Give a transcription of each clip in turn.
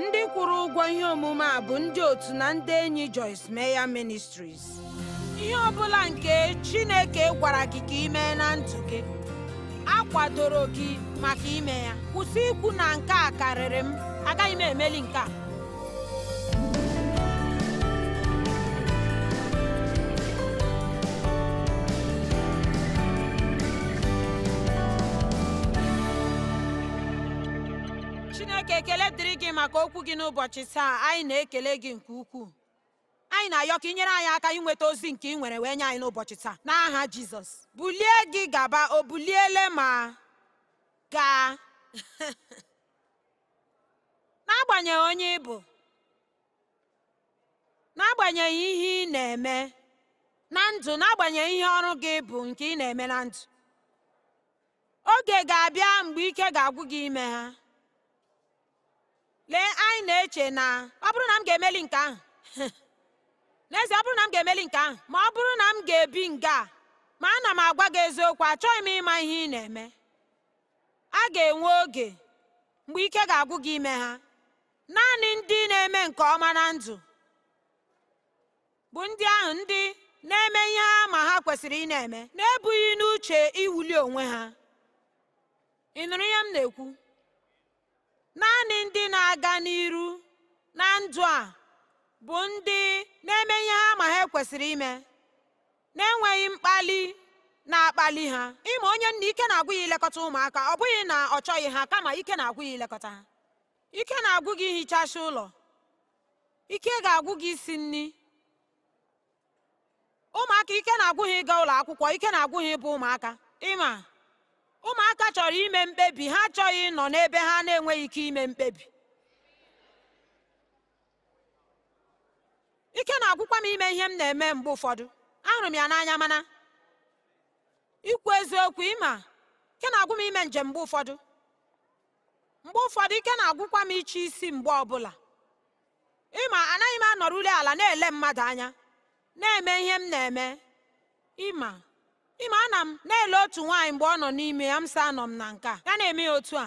ndị kwụrụ ụgwọ ihe omume a bụ ndị otu na ndị enyi Joyce Meya Ministries ihe ọbụla nke Chineke gwara gị ka mee na ndụ gị akwadoro gị maka ime ya kwụsị ikwu na nke a karịrị m agaghị m emeli nke a maka okwu gị n'ụbọchị taa anyị na-ekele gị nke ukwuu anyị na-ayọ ka nyere anyị aka inweta ozi nke ị nwere wee nye anyị n'ụbọchị taa n'aha Jizọs bulie gị gaba o buliele ma gaa n'agbanyeghị onye ị bụ n'agbanyeghị ihe ị na-eme na ndụ n'agbanyeghị ihe ọrụ gị bụ nke ị na-eme na ndụ oge ga-abịa mgbe ike ga-agwụ gị ime ha lee anyị na-eche na ọ bụrụ na m ga-emeli nke ahụ n'ezie ọ bụrụ na m ga-emeli nke ahụ ma ọ bụrụ na m ga-ebi nga a ma ana m agwa gị eziokwu achọghị m ịma ihe ị na-eme a ga-enwe oge mgbe ike ga-agwụ gị ime ha naanị ndị na-eme nke ọma na ndụ bụ ndị ahụ ndị na-eme ihe ha ma ha kwesịrị ị na-eme na-ebughị n'uche iwuli onwe ha ị nụrụ ihe m na-ekwu naanị ndị na na-aga n'iru na ndụ a bụ ndị na-eme ihe ha ma ha kwesịrị ime na-enweghị mkpali na-akpali ha ịma onye nna ike na-agwụ ya ilekọta ụmụaka ọ bụghị na ọ chọghị ha kama ike na-agwụ ilekọta ha ike na-agwụ gị ụlọ ike ga-agwụ gị isi nri ụmụaka ike na-agwụ ha ịga ụlọ akwụkwọ ike na-agwụ ha ịbụ ụmụaka ịma ụmụaka chọrọ ime mkpebi ha achọghị nọ n'ebe ha na-enweghị ike ime mkpebi ike na-agwụkwa m ime ihe m na-eme mgbe ụfọdụ ahụrụ m ya n'anya mana ikwu eziokwu ịma ike na-agwụ m ime njem mgbe ụfọdụ mgbe ụfọdụ ike na-agwụkwa m iche isi mgbe ọbụla ịma anaghị m anọrụli ala na-ele mmadụ anya na-eme ihe m na-eme ịma ịma ana m na-ele otu nwaanyị mgbe ọ nọ n'ime ya m sị anọ m na nke a ya na-eme ya otu a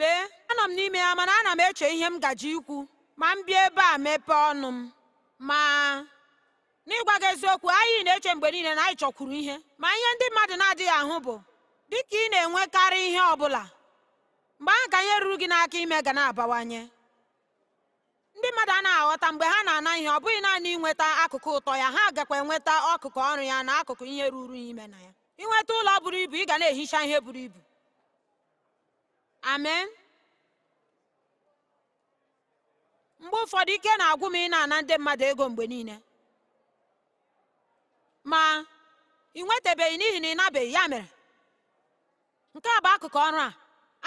lee anọ m n'ime ya mana ana m eche ihe m gaji ikwu ma m bịa ebe a mepee ọnụ m ma n'ịgwa gị eziokwu anyị na-eche mgbe niile na anyị chọkwuru ihe ma ihe ndị mmadụ na-adịghị ahụ bụ dịka ị na-enwekarị ihe ọ bụla mgbe ahụ ka ihe ruru gị n'aka ime ga na-abawanye ndị mmadụ anaghị aghọta mgbe ha na-ana ihe ọ bụghị naanị ịnweta akụkụ ụtọ ya ha gakwa enweta ọkụkụ ọrụ ya na akụkụ ihe ruru ya ime na ya ịnweta ụlọ buru ibu ị ga na-ehicha ihe buru ibu amen mgbe ụfọdụ ike na-agwụ m ị na-ana ndị mmadụ ego mgbe niile ma ị nwetabeghị n'ihi na ị nabeghị ya mere nke a bụ akụkụ ọrụ a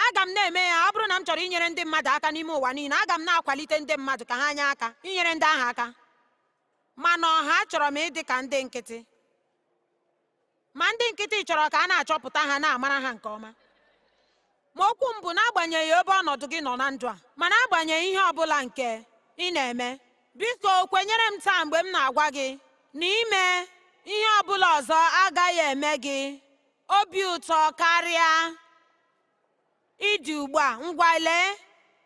aga m na-eme ya ọ bụrụ na m chọrọ inyere ndị mmadụ aka n'ime ụwa niile aga m na-akwalite ndị mmadụ ka ha nye aka inyere ndị ahụ aka mana ọha chọrọ m ịdị ka ndị nkịtị ma ndị nkịtị chọrọ ka a na-achọpụta ha na-amara ha nke ọma ma okwu m bụ n'agbanyeghị ebe ọnọdụ gị nọ na ndụ a mana agbanyeghị ihe ọ bụla nke ị na-eme biko kwenyere m taa mgbe m na-agwa gị na ime ihe ọ bụla ọzọ agaghị eme gị obi ụtọ karịa ịdị ugbu a ngwa lee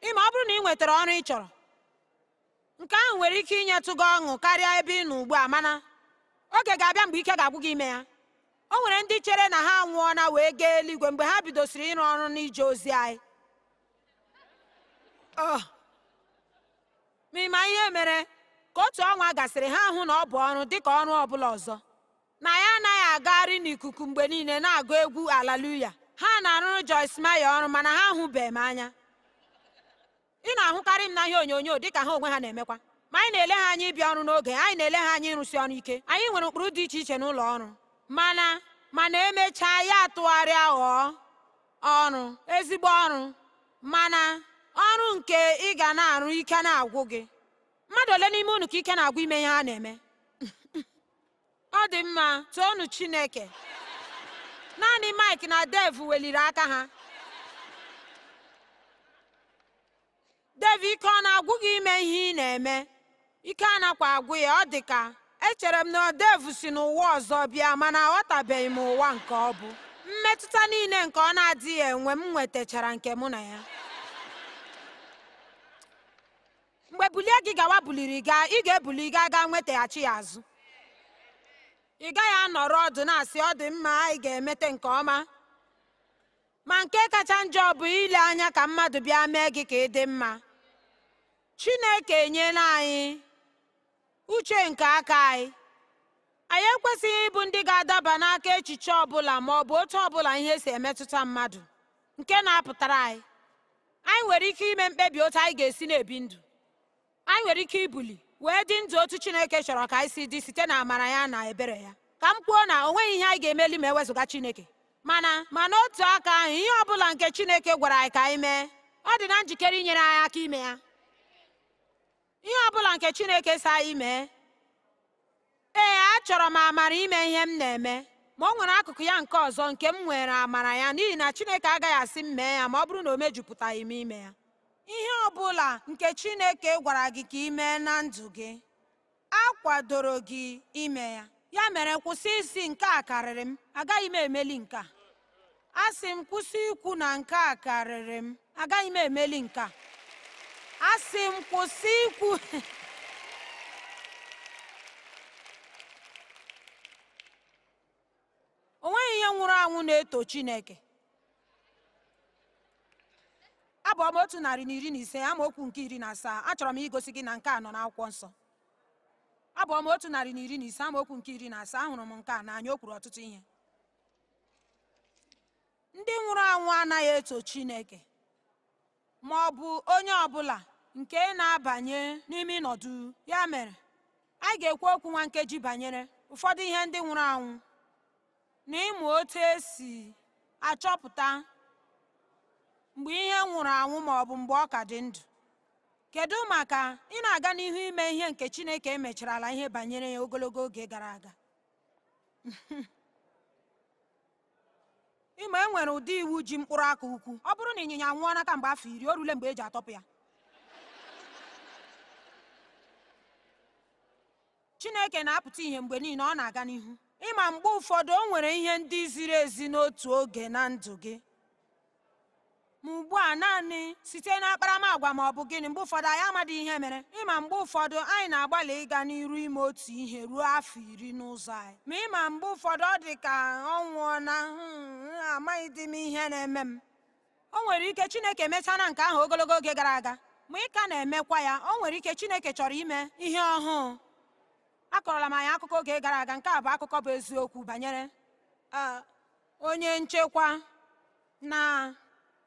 ịma ọ bụrụ na ị nwetara ọrụ ị chọrọ nke ahụ nwere ike inyetụ gị ọṅụ karịa ebe ị nọ ugbu a mana oge ga-abịa mgbe ike ga-agwụ gị ime ya o nwere ndị chere na ha anwụọna wee gaa eluigwe mgbe ha bidosiri ịrụ ọrụ n'ije ozi anyị oh. ma ihe mere ka otu ọnwa gasịrị ha hụ na ọ bụ ọrụ dịka ọrụ ọbụla ọzọ na ya anaghị agagharị n'ikuku mgbe niile na-agụ egwu alaluya ha na-arụrụ Joyce Meyer ọrụ mana ha ahụbeghị m anya ị na-ahụkarị m na ihe onyonyo dịka ha onwe ha na-emekwa ma anyị na-ele ha anya ịbịa ọrụ n'oge anyị na-ele ha anya ịrụsi ọrụ ike anyị nwere ụkpụrụ dị iche iche n'ụlọ ọrụ mana mana emechaa ya tụgharịa ghọọ ọrụ ezigbo ọrụ mana ọrụ nke ị ga na-arụ ike na-agwụ gị mmadụ ole n'ime unu ka ike na-agwụ ime ihe a na-eme ọ dị mma toonu chineke naanị mike na dev weliri aka ha dev ike ọ na-agwụ gị ime ihe ị na-eme ike a nakwa agwụ ya ọ dị ka echere m na odevu si n'ụwa ọzọ bịa mana aghọtabeghị m ụwa nke ọ bụ mmetụta niile nke ọ na-adịghị enwe m nwetachara nke mụ na ya mgbe bulie gị gawa buliri gaa ị ga-ebuli gaa gaa nwetaghachi ya azụ ị gaghị anọrọ ọdụ na-asị ọ dị mma anyị ga-emete nke ọma ma nke kacha njọ bụ ile anya ka mmadụ bịa mee gị ka ị dị mma Chineke enyela anyị uche nke aka anyị anyị ekwesịghị ịbụ ndị ga-adaba n'aka echiche ọbụla ma ọ bụ otu ọbụla ihe si emetụta mmadụ nke na-apụtara anyị anyị nwere ike ime mkpebi otu anyị ga-esi na-ebi ndụ anyị nwere ike ibuli wee dị ndụ otu chineke chọrọ ka anyị si dị site na amara ya na ebere ya ka m kwuo na o ihe anyị ga-emeli ma ewezụga chineke mana ma n'otu aka ahụ ihe ọ bụla nke chineke gwara anyị ka anyị mee ọ dị na njikere inyere anyị aka ime ya ihe ọ bụla nke chineke si ime. ee achọrọ m amara ime ihe m na-eme ma ọ nwere akụkụ ya nke ọzọ nke m nwere amara ya n'ihi na chineke agaghị asị m mee ya ma ọ bụrụ na o mejupụtaghị m ime ya ihe ọ bụla nke chineke gwara gị ka ị mee na ndụ gị a kwadoro gị ime ya ya mere kwụsị isi nke a karịrị m agaghị m emeli nke a Asị sị m kwụsị ikwu na nke a karịrị m agaghị m emeli nke a asị m kwụsị ikwu o ihe nwụrụ anwụ na-eto Chineke abụọ m otu narị na iri na ise amaokwu nke iri na asaa achọrọ m igosi gị na nke a nọ akwụkwọ nsọ abụ m otu narị na iri na ise amaokwu nke iri na asaa ahụrụ m nke a na anya okwuru ọtụtụ ihe ndị nwụrụ anwụ anaghị eto Chineke ma ọ bụ onye ọbụla nke na-abanye n'ime ịnọdụ ya mere a ga-ekwu okwu nwa nkeji banyere ụfọdụ ihe ndị nwụrụ anwụ na ịmụ otu esi achọpụta mgbe ihe nwụrụ anwụ ma ọ bụ mgbe ọ ka dị ndụ kedu maka ị na-aga n'ihu ime ihe nke Chineke e ala ihe banyere ya ogologo oge gara aga ịma e nwere ụdị iwu ji mkpụrụ aka ukwu ọ bụrụ na ịnyịnya nwụọ n'aka mgbe afọ iri o rule mgbe e ji atọpụ ya chineke na-apụta ihe mgbe niile ọ na-aga n'ihu ịma mgbe ụfọdụ o nwere ihe ndị ziri ezi n'otu oge na ndụ gị ma ugbu a naanị site na akparamagwa ma ọ bụ gịnị mgbe ụfọdụ anyị amadị ihe mere ịma mgbe ụfọdụ anyị na-agbalị ịga n'iru ime otu ihe ruo afọ iri n'ụzọ anyị ma ịma mgbe ụfọdụ ọ dị ka ọ nwụọ na hmm, dị m ihe na-eme m o nwere ike chineke emechana nke ahụ ogologo oge gara aga ma ị ka na-emekwa ya o nwere ike chineke chọrọ ime ihe ọhụụ akọrọla m anyị akụkọ oge gara aga nke a bụ akụkọ bụ eziokwu banyere onye nchekwa na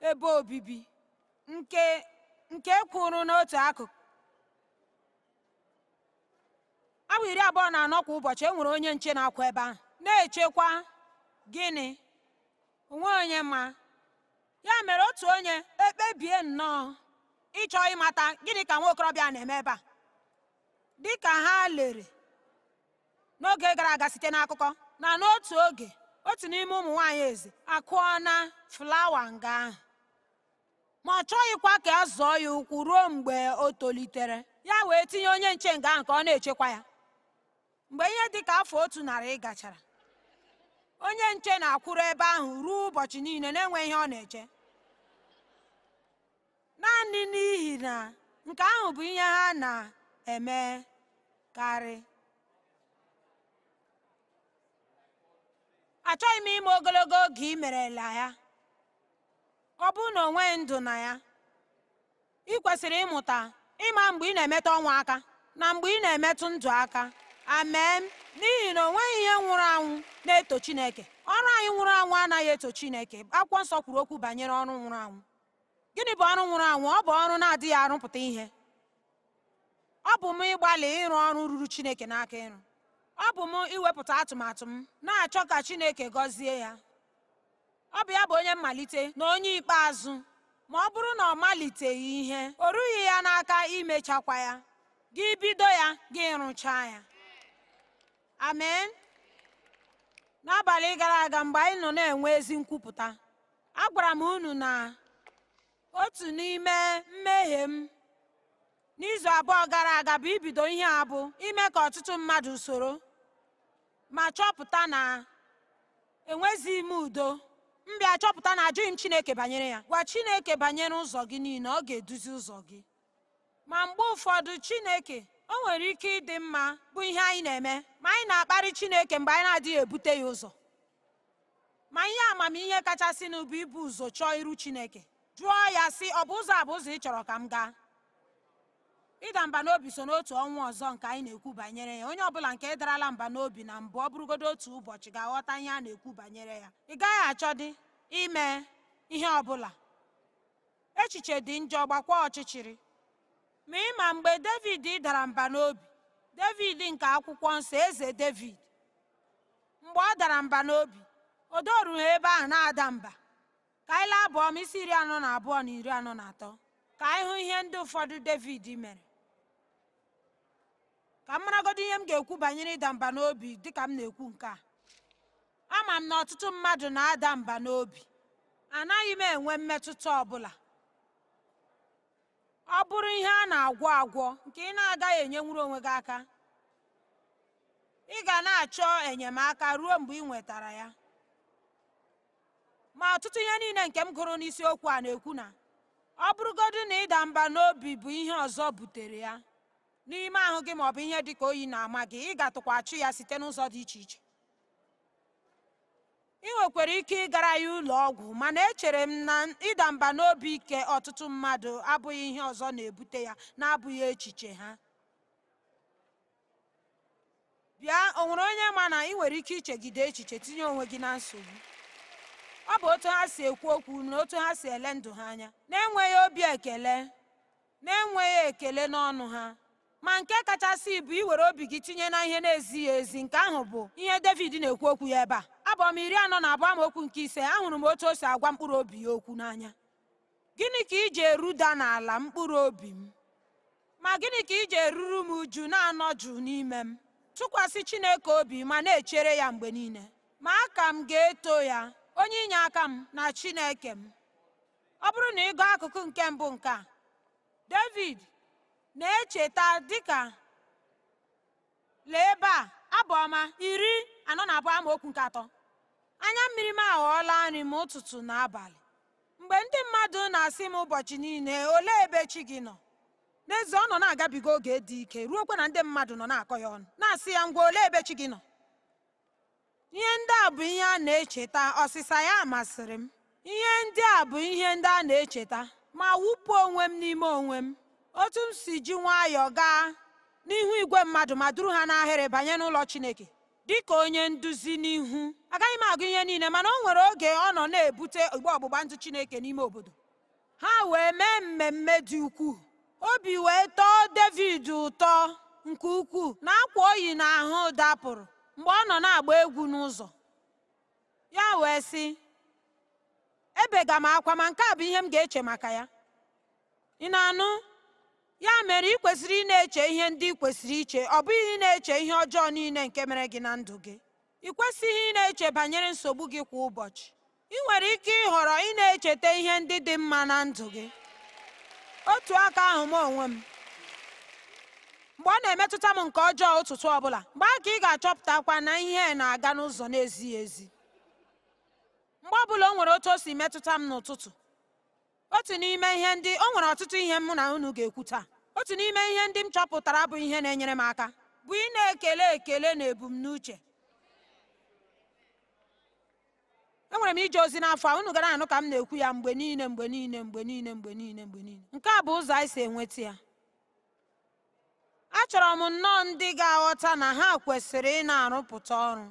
ebe obibi nke nke kwụrụ n'otu akụkụ awa iri abụọ na anọ kwa ụbọchị e nwere onye nche na-akwa ebe ahụ na-echekwa gịnị onwe onye ma ya mere otu onye ekpebie nnọọ ịchọ ịmata gịnị ka nwa okorobịa na-eme ebe a dị ka ha lere n'oge gara aga site n'akụkọ na n'otu oge otu n'ime ụmụ nwaanyị eze akụọ flawa nga ahụ ma ọ chọghịkwa ka a zụọ ya ụkwụ ruo mgbe o tolitere ya wee tinye onye nche nga ahụ ka ọ na-echekwa ya mgbe ihe dị ka afọ otu narị gachara onye nche na-akwụrụ ebe ahụ ruo ụbọchị niile na-enweghị ihe ọ na-eche naanị n'ihi na nke ahụ bụ ihe ha na eme karị. achọghị m ime ogologo oge i ya ọ bụrụ na onwe ndụ na ya ị kwesịrị ịmụta ịma mgbe ị na-emetụ ọnwụ aka na mgbe ị na-emetụ ndụ aka amen n'ihi na o nweghị ihe nwụrụ anwụ na-eto Chineke ọrụ anyị nwụrụ anwụ anaghị eto Chineke akwụkwọ nsọ kwuru okwu banyere ọrụ nwụrụ anwụ gịnị bụ ọrụ nwụrụ anwụ ọ bụ ọrụ na-adịghị arụpụta ihe ọ bụ m ịgbalị ịrụ ọrụ ruru Chineke n'aka ịrụ ọ bụ m iwepụta atụmatụ m na-achọ ka Chineke gọzie ya ọ bụ ya bụ onye mmalite na onye ikpeazụ ma ọ bụrụ na ọ maliteghị ihe o rughị ya n'aka imechakwa ya gị bido ya gị rụchaa ya amen n'abalị gara aga mgbe anyị nọ na-enwe ezi nkwupụta agwara m unu na otu n'ime mmehie m n'izu abụọ gara aga bụ ibido ihe a ime ka ọtụtụ mmadụ soro ma chọpụta na enwezighị m udo m bịa chọpụta na ajụghị m chineke banyere ya gwa chineke banyere ụzọ gị niile ọ ga-eduzi ụzọ gị ma mgbe ụfọdụ chineke o nwere ike ịdị mma bụ ihe anyị na-eme ma anyị na-akparị chineke mgbe anyị na-adịghị ebute ya ụzọ ma ihe amamihe kachasị bụ ibu ụzọ chọọ iru chineke jụọ ya sị ọ bụ ụzọ a bụ ụzọ ị chọrọ ka m gaa ịda mba n'obi so n'otu ọnwa ọzọ nke anyị na-ekwu banyere ya onye ọbụla nke darala mba n'obi na mbụ ọ bụrụgodo otu ụbọchị ga-aghọta ihe a na-ekwu banyere ya ị gaghị achọdị ime ihe ọbụla echiche dị njọ gbakwa ọchịchịrị ma ma mgbe david dara mba n'obi david nke akwụkwọ nsọ eze david mgbe ọ dara mba n'obi o dorughị ebe ahụ na-ada mba ka anyị laa abụọ m isi iri anọ na abụọ na iri anọ na atọ ka anyị hụ ihe ndị ụfọdụ david mere ka m maragodo ihe m ga-ekwu banyere ịda mba n'obi dịka m na-ekwu nke a ama m na ọtụtụ mmadụ na-ada mba n'obi anaghị m enwe mmetụta ọbụla ọ bụrụ ihe a na-agwọ agwọ nke ị na-agaghị enyenwuru onwe gị aka ị ga na-achọ enyemaka ruo mgbe ị nwetara ya ma ọtụtụ ihe niile nke m gụrụ n'isiokwu a na-ekwu na ọ bụrụgodu na ịda mba n'obi bụ ihe ọzọ butere ya n'ime ahụ gị maọbụ ihe dị ka oyi na-ama gị ị ga-atụkwachụ ya site n'ụzọ dị iche iche ị nwekwara ike ịgara ya ụlọ ọgwụ mana echere m na ịda mba n'obi ike ọtụtụ mmadụ abụghị ihe ọzọ na-ebute ya na-abụghị echiche ha bịa o nwere onye ma na ị nwere ike ichegide echiche tinye onwe gị na nsogbu ọ bụ otu ha si ekwu okwu na otu ha si ele ndụ ha anya na-enweghị obi ekele na-enweghị ekele n'ọnụ ha ma nke kachasị bụ iwere obi gị tinye na ihe na-ezighị ezi nke ahụ bụ ihe David na-ekwu okwu ya ebe a abụ m iri anọ na abụọ okwu nke ise ahụrụ m otu o si agwa mkpụrụ obi ya okwu n'anya gịnị ka iji eruda n'ala mkpụrụ obi m ma gịnị ka iji eruru m uju na-anọ jụụ n'ime m tụkwasị Chineke obi ma na-echere ya mgbe niile ma aka m ga-eto ya onye inye aka m na Chineke m ọ bụrụ na ị gụọ akụkụ nke mbụ nke a David na-echeta dịka lee ebe a abụ ọma iri anọ na abụọ amaokwu nke atọ anya mmiri m aghọọla nri m ụtụtụ na abalị mgbe ndị mmadụ na-asị m ụbọchị niile ole ebe chi gị nọ n'ezie ọ nọ na-agabiga oge dị ike ruokwa na ndị mmadụ nọ na-akọ ya ọnụ na-asị ya ngwa ole ebe chi gị nọ ihe ndị a bụ ihe a na-echeta ọsịsa ya masịrị m ihe ndị a bụ ihe ndị a na-echeta ma wụpụ onwe m n'ime onwe m otu m si ji nwayọọ gaa n'ihu igwe mmadụ ma duru ha n'ahịrị banye n'ụlọ chineke dị ka onye nduzi n'ihu agaghị m agụ ihe niile mana o nwere oge ọ nọ na-ebute igbe ọgbụgba ndụ chineke n'ime obodo ha wee mee mmemme dị ukwuu obi wee tọọ david ụtọ nke ukwuu na akwa oyi na ahụ dapụrụ mgbe ọ nọ na-agba egwu n'ụzọ ya wee sị ebega m akwa ma nke a bụ ihe m ga-eche maka ya ị na-anụ ya mere ị kwesịrị ị na-eche ihe ndị ị kwesịrị iche ọ bụghị ị na-eche ihe ọjọọ niile nke mere gị na ndụ gị ị kwesịghị ị na-eche banyere nsogbu gị kwa ụbọchị ị nwere ike ịhọrọ ị na-echeta ihe ndị dị mma na ndụ gị otu aka ahụ m onwe m mgbe ọ na-emetụta m nke ọjọọ ụtụtụ ọbụla mgbe a ka ị ga-achọpụtakwa na ihe na-aga n'ụzọ na-ezighị ezi mgbe ọbụla o nwere otu o si metụta m n'ụtụtụ otu n'ime ihe ndị o nwere ọtụtụ ihe mụ na unu ga-ekwu taa otu n'ime ihe ndị m chọpụtara bụ ihe na-enyere m aka bụ ị na-ekele ekele na ebumnuche enwere m ije ozi n'afọ a unu gara anụ ka m na-ekwu ya mgbe niile mgbe niile mgbe niile mgbe niile mgbe niile nke a bụ ụzọ anyị si enweta ya achọrọ m nnọọ ndị ga-aghọta na ha kwesịrị ị na-arụpụta ọrụ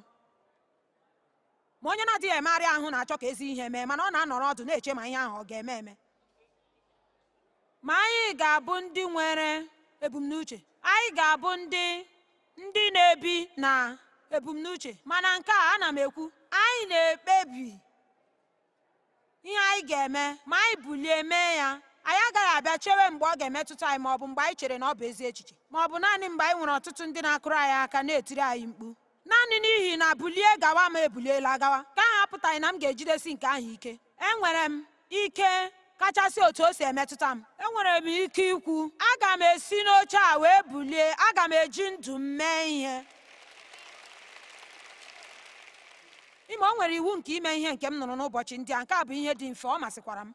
ma onye na-adịghị emegharị ahụ na-achọ ka ezi ihe mee mana ọ na-anọrọ ọdụ na-eche ma ihe ahụ ọ ga-eme eme ma anyị ga-abụ ndị nwere ebumnuche anyị ga-abụ ndị ndị na-ebi na ebumnuche mana nke a ana m ekwu anyị na-ekpebi ihe anyị ga-eme ma anyị bulie mee ya anyị agaghị abịa chewe mgbe ọ ga-emetụta anyị ma ọ bụ mgbe anyị chere na ọ bụ ezi echiche ma ọ bụ naanị mgbe anyị nwere ọtụtụ ndị na-akụrụ anyị aka na-etiri anyị mkpu naanị n'ihi na bulie gawa ma ebuliela agawa ka ahụ apụtaghị na m ga-ejidesi nke ahụ ike enwere m ike kachasị otu o si emetụta m enwere m ike ikwu aga m esi n'oche a wee bulie aga m eji ndụ m mee ihe ime o nwere iwu nke ime ihe nke m nụrụ n'ụbọchị ndị a nke a bụ ihe dị mfe ọ masịkwara m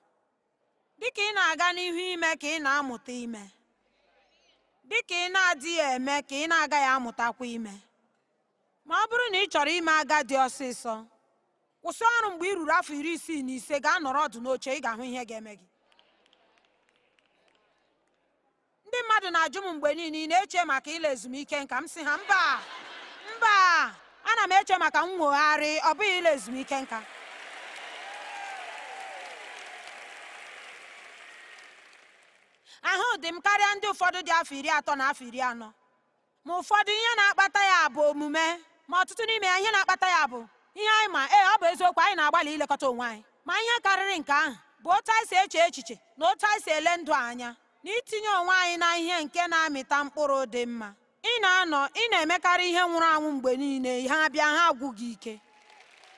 dịka ị na-aga n'ihu ime ka ị na-amụta ime dịka ị na-adịghị eme ka ị na-agaghị amụtakwa ime ma ọ bụrụ na ị chọrọ ime dị ọsịsọ kwụsị ọrụ mgbe ị ruru afọ iri isii na ise ga nọrọ ọdụ n'oche ị ga-ahụ ihe ga-eme gị ndị mmadụ na-ajụ m mgbe niile ị na-eche maka ile ezumike nka m si ha mba mba na m eche maka nwogharị ọ bụghị ile ezumike nka ahụ dị m karịa ndị ụfọdụ dị afọ iri atọ na afọ iri anọ ma ụfọdụ ihe na-akpata ya bụ omume ma ọtụtụ n'ime ya ihe na-akpata ya bụ ihe anyị ma ee eh, ọ bụ eziokwu anyị na-agbalị ilekọta onwe anyị ma ihe karịrị nke ahụ bụ otu anyị si eche echiche na otu anyị si ele ndụ anya na itinye onwe anyị na ihe nke na-amịta mkpụrụ dị mma ị na-anọ ị na-emekarị ihe nwụrụ anwụ mgbe niile ha bịa ha agwụ gị ike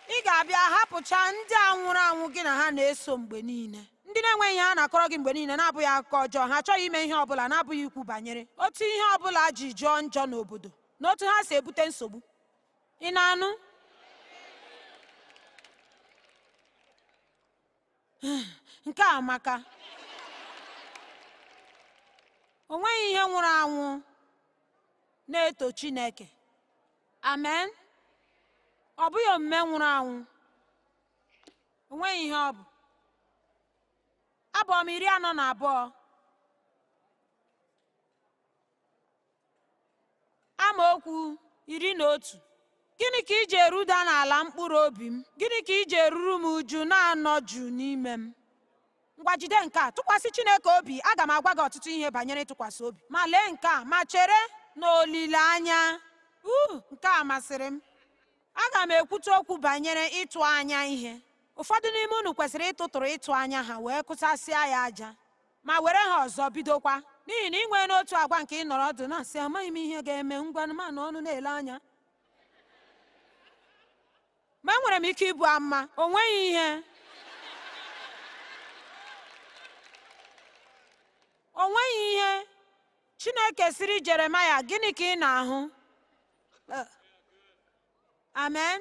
ị ga-abịa hapụcha ndị a nwụrụ anwụ gị na ha na-eso mgbe niile ndị na-enweghị ihe ha na-akọrọ gị mgbe niile na-abụghị akụkọ ọjọọ ha achọghị ime ihe ọbụla na-abụghị ikwu banyere otu ihe ọbụla ji jụọ njọ n'obodo na otu ha si ebute nsogbu ị na-anụ nke a amaka onweghị ihe nwụrụ anwụ na-eto chineke amen ọ bụghị omume nwụrụ anwụ onweghị ihe ọ bụ abụọ m iri anọ na abụọ amaokwu iri na otu gịnị ka iji eruda n'ala mkpụrụ obi m gịnị ka iji eruru m uju na-anọ jụụ n'ime m ngwa jide nke a tụkwasị chineke obi aga m agwa gị ọtụtụ ihe banyere ịtụkwasị obi ma lee nke a ma chere na olileanya uu nke a masịrị m aga m ekwute okwu banyere ịtụ anya ihe ụfọdụ n'ime unu kwesịrị ịtụtụrụ ịtụ anya ha wee kụsasịa ya aja ma were ha ọzọ bidokwa n'ihi na ị nwee n'otu agwa nke nọrọ ọdụ na-asị amaghị m ihe ga-eme ngwanụ ọnụ na-ele anya ma enwere m ike ịbụ ama o nweghị ihe o nweghị ihe chineke siri jeremaya gịnị ka ị na-ahụ eh. amen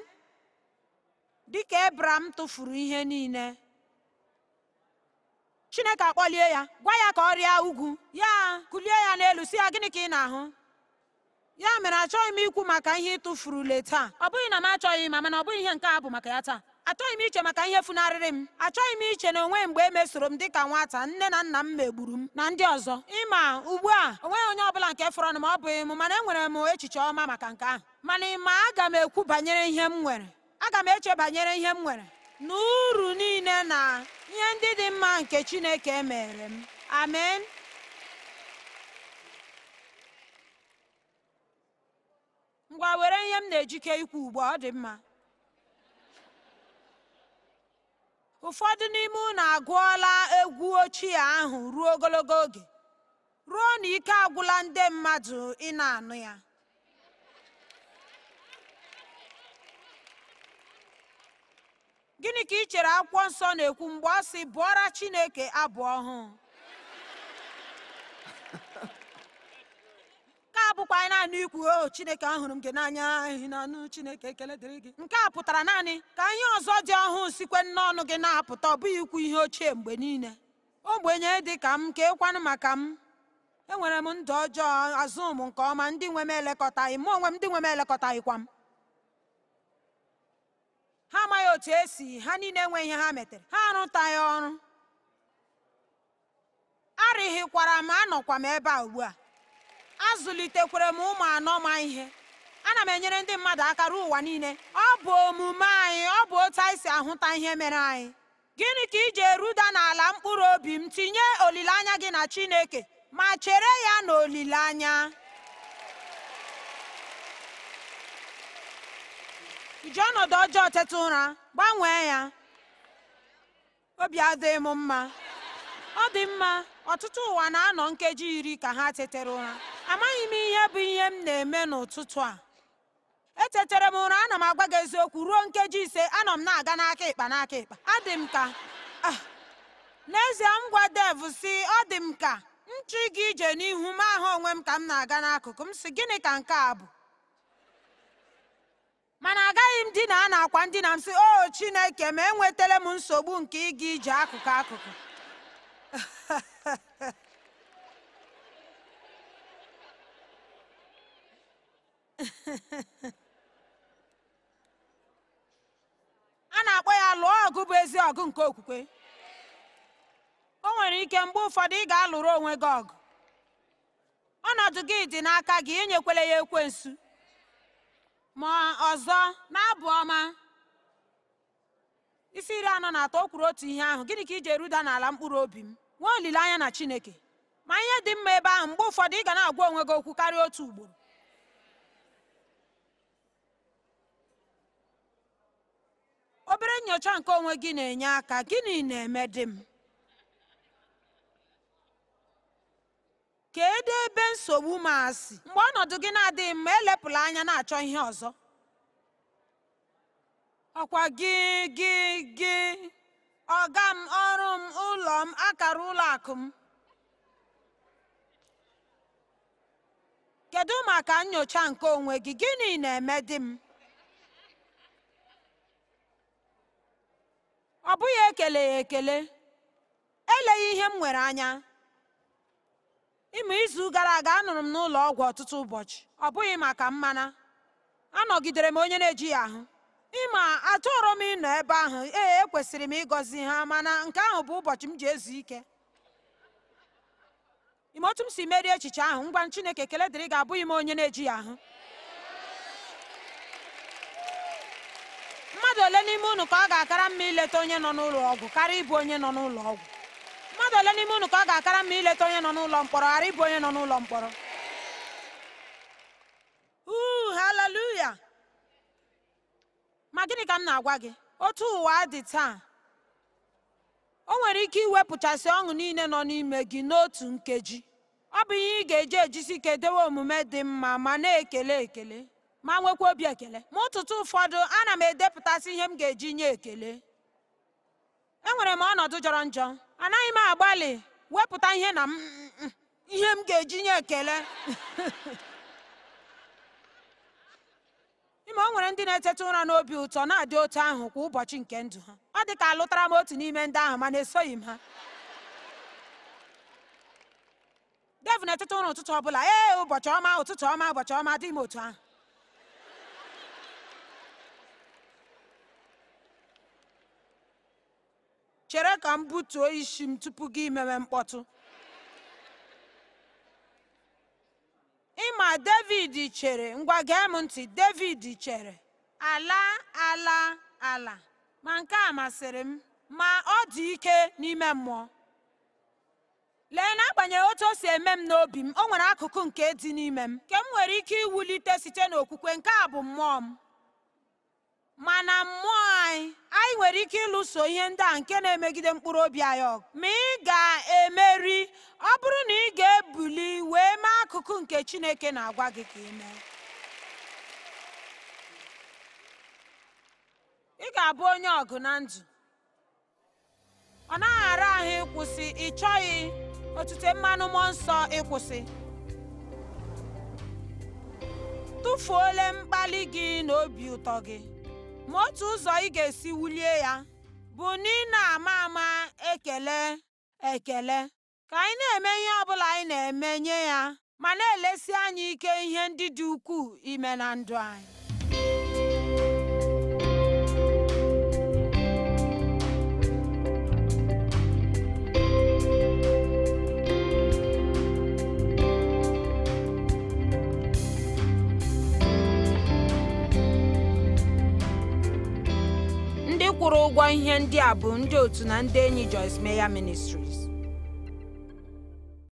Dị ka ebram tụfuru ihe niile chineke akpọlie ya gwa ya ka ọ rịa ugwu ya kulie ya n'elu si ya gịnị ka ị na-ahụ ya mere achọghị m ikwu maka ihe ị tụfurule taa ọ bụghị na m achọghị ma mana ọ bụghị ihe nke a bụ maka ya taa achọghị m iche maka ihe funarịrị m achọghị m iche na onwe mgbe e mesoro m dịka nwata nne na nna m megburu m na ndị ọzọ ịma ugbu a onweghị onye ọbụla nke fọrọ m ọ bụghị m mana enwere m echiche ọma maka nke ahụ mana ịma aga m ekwu banyere ihe m nwere aga m eche banyere ihe m nwere na uru niile na ihe ndị dị mma nke Chineke mere m amen ngwa were ihe m na-ejike ikwu ugbu ọ dị mma ụfọdụ n'ime unu agụọla egwu ochie ahụ ruo ogologo oge ruo na ike agwụla ndị mmadụ ị na-anụ ya gịnị ka ị chere akwụkwọ nsọ na-ekwu mgbe ọ sị bụọra Chineke abụ ọhụụ abụkwa naanị ikwu o oh, chineke ahụrụ m gị n'anya ehi na anụ chineke ekele dịrị gị nke a pụtara naanị ka ihe ọzọ dị ọhụụ sikwe n'ọnụ gị na-apụta ọ bụghị ikwu ihe ochie mgbe niile ogbenye dị ka m ka ekwanụ maka m enwere m ndụ ọjọọ azụ m nke ọma ndị nwe m elekọtaghị m onwe m ndị nwe m kwa m ha amaghị otu esi ha niile enwe ihe ha metere ha arụtaghị ọrụ arịghịkwara m anọkwa m ebe a ugbu a zụlitekwere m ụmụ anọ ma ihe ana m enyere ndị mmadụ aka ruo ụwa niile ọ bụ omume anyị ọ bụ otu anyị si ahụta ihe mere anyị gịnị ka ije eruda n'ala mkpụrụ obi m tinye olileanya gị na Chineke ma chere ya na olileanya iji ọnọdụ ọjọọ ụra gbanwee ya obi adịghị m mma ọ dị mma ọtụtụ ụwa na-anọ nkeji iri ka ha tetere ụra amaghị m ihe bụ ihe m na-eme n'ụtụtụ a echetara m ụra ana m agwa gị eziokwu ruo nkeji ise anọ m na-aga n'aka ịkpa n'aka ịkpa adị m ka ah, n'ezie m gwa dev si ọ dị m ka nchụ gị ije n'ihu m ahụ onwe m ka m na-aga n'akụkụ m si gịnị ka nke a bụ mana agaghị m dina a na akwa ndina m si o chineke ma enwetala m nsogbu nke ịga ije akụkụ akụkụ a na-akpọ ya lụọ ọgụ bụ ezi ọgụ nke okwukwe o nwere ike mgbe ụfọdụ ị ga-alụrụ onwe gị ọgụ ọnọdụ gị dị n'aka gị enyekwele ya ekwensu ma ọzọ na-abụ ọma isi iri anọ na atọ o kwuru otu ihe ahụ gịnị ka iji eruda n'ala mkpụrụ obi m nwee olileanya na Chineke ma ihe dị mma ebe ahụ mgbe ụfọdụ ị ga na-agwa onwe gị okwu karịa otu ugboro obere nnyocha nke onwe gị na-enye aka gịnị na-eme dị m kedu ebe nsogbu m asị mgbe ọnọdụ gị na-adịghị mma elepụla anya na-achọ ihe ọzọ ọkwa gị gị gị ọga m ọrụ m ụlọ m akara ụlọ akụ m kedu maka nyocha nke onwe gị gịnị na-eme di m ọ bụghị ekele ya ekele eleghị ihe m nwere anya ịmụ izu gara aga anụrụ m n'ụlọ ọgwụ ọtụtụ ụbọchị ọ bụghị maka mmana anọgidere m onye na-eji ya ahụ ịma atụrụ m ịnọ ebe ahụ ee ekwesịrị m ịgọzi ha mana nke ahụ bụ ụbọchị m ji ezu ike ime otu m si merie echiche ahụ ngwa Chineke ekele abụghị m onye na-eji ya ahụ mmadụ ole n'ime unu ka ọ ga-akara mma ileta onye nọ n'ụlọ ọgwụ kara ịbụ onye nọ n'ụlọ ọgwụ mmadụ ole n'ime unu ka ọ ga-akara mma ileta onye nọ n'ụlọ mkpọrọ ghara ịbụ onye nọ n'ụlọ mkpọrọ uu haleluya ma gịnị ka m na-agwa gị otu ụwa dị taa o nwere ike iwepụchasị ọṅụ niile nọ n'ime gị n'otu nkeji ọ bụ ihe ị ga-eji ejisi ike dewe omume dị mma ma na-ekele ekele ma nwekwa obi ekele ma ụtụtụ ụfọdụ ana m edepụtasị ihe m ga-eji nye ekele enwere m ọnọdụ jọrọ njọ anaghị m agbalị wepụta ihe na ihe m ga-eji nye ekele ime o nwere ndị na-eteta ụra n'obi ụtọ na-adị otu ahụ kwa ụbọchị nke ndụ ha ọ dị ka alụtara m otu n'ime ndị ahụ mana esoghị m ha dev na-eteta ụra ụtụtụ ọ bụla ee ụbọchị ọma ụtụtụ ọma ụbọchị ọma dị m otu ahụ chere ka m butuo isi m tupu gị mewe mkpọtụ ịma david chere ngwa gee m ntị david chere ala ala ala ma nke a masịrị m ma ọ dị ike n'ime mmụọ lee n'agbanyeghị otu o si eme m n'obi m o nwere akụkụ nke dị n'ime m nke m nwere ike iwulite site n'okwukwe nke a bụ mmụọ m mana mmụọ anyị anyị nwere ike ịlụso ihe ndị a nke na-emegide mkpụrụ obi anyị ọgụ ma ị ga-emeri ọ bụrụ na ị ga-ebuli wee mee akụkụ nke Chineke na-agwa gị ka ị mee ị ga-abụ onye ọgụ na ndụ ọ naghị ara ahụ ịkwụsị ị chọghị otute mmanụ mmụọ nsọ ịkwụsị tụfuola mkpali gị na obi ụtọ gị ma otu ụzọ ị ga-esi wulie ya bụ na ị na-ama ama ekele ekele ka anyị na-eme ihe bụla anyị na-eme nye ya ma na-elesi anyị ike ihe ndị dị ukwuu ime na ndụ anyị kwụrụ ụgwọ ihe ndị a bụ ndị otu na ndị enyi Joyce Meyer Ministries